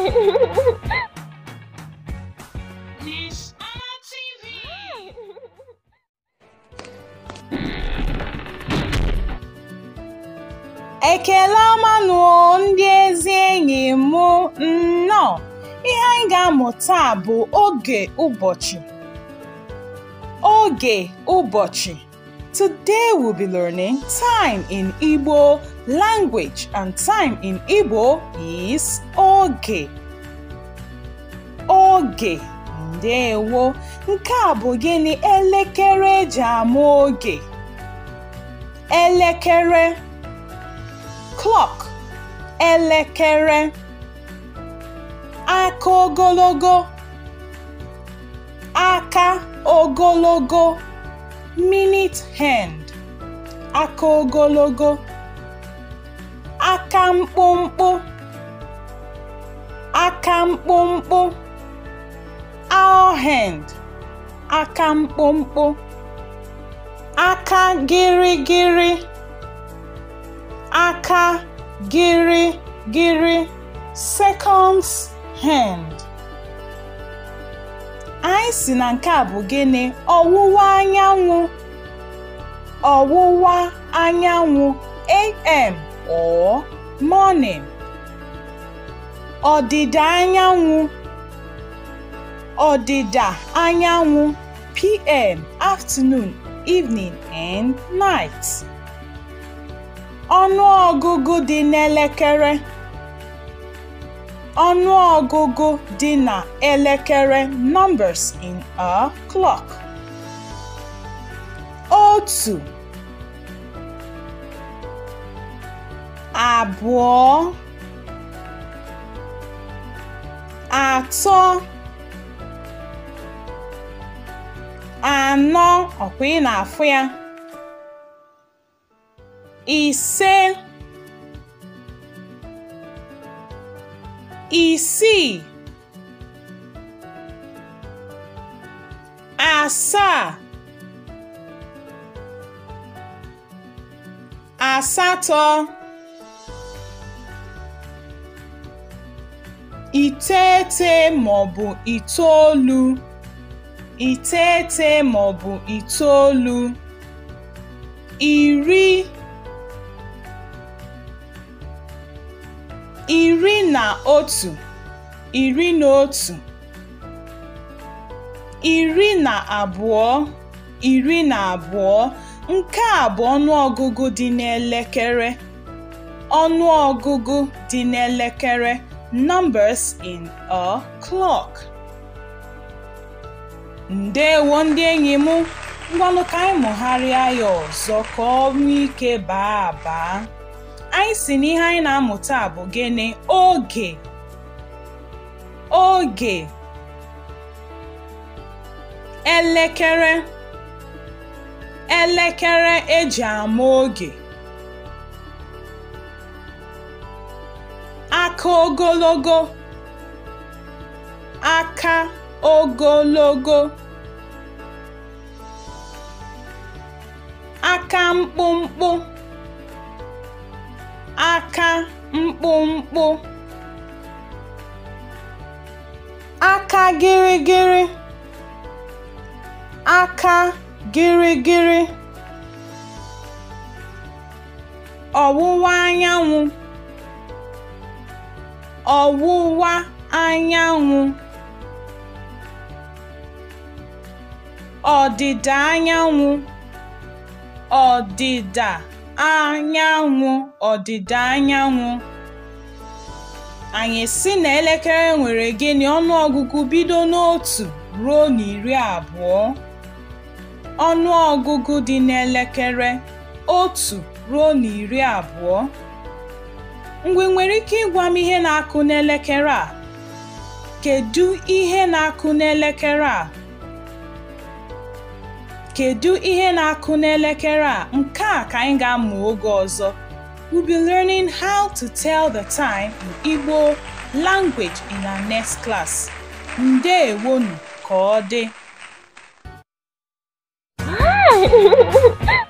Ekele ọma ndị ezi enyi m nnọọ ihe anyị ga amụta bụ oge ụbọchị oge ụbọchị Today we'll be learning time in Igbo language and time in Igbo is oge. Oge. Ndewo. Nke a bụ gịnị elekere eji ama oge? Elekere. Clock. Elekere. Aka ogologo. Aka ogologo. minute hand (aka ogologo), aka mkpụmkpụ, aka mkpụmkpụ, owl hand (aka mkpụmkpụ), aka gịrịgịrị, aka gịrịgịrị, seconds hand. anyị si na nke a bụ gịnị ọwụwa anyanwụ ọwụwa anyanwụ am or morning ọdịda anyanwụ ọdịda anyanwụ pm afternoon evening and night ọnụ ọgụgụ dị n'elekere ọnụọgụgụ dị na elekere (numbers in a clock) otu, abụọ, atọ, anọ ọkwa ị na-afụ ya ise isii asaa asatọ iteghete maọbụ itoolu iteghete maọbụ itoolu iri iri na otu, iri na otu, iri na abụọ, iri na abụọ nke a bụ ọnụọgụgụ dị n'elekere. Ọnụọgụgụ dị n'elekere (numbers in a clock). Ndewo ndị enyi m, ngwanụ ka anyị mụgharịa ya ọzọ ka ọ ike baa abaa. anyị si n'ihe anyị na-amụta bụ gịnị oge oge elekere elekere eji ama oge aka ogologo aka ogologo aka mkpụmkpụ aka mkpụmkpụ aka gịrịgịrị aka gịrịgịrị ọwụwa anyanwụ ọwụwa anyanwụ ọdịda anyanwụ ọdịda anyanwụ ọdịda anyanwụ. Anyị si na elekere nwere gịnị ọnụọgụgụ bido n'otu ruo n'iri abụọ. ọnụ ọgụgụ dị n'elekere otu ruo na iri abụọ. mgbe nwere ike ịgwa m ihe na-akụ n'elekere a? kedụ ihe na-akụ n'elekere a? Kedu ihe na-akụ n'elekere a? Nke a ka anyị ga-amụ oge ọzọ. We'll be learning how to tell the time in Igbo language in our next class. Ndewonu ka ọ dị.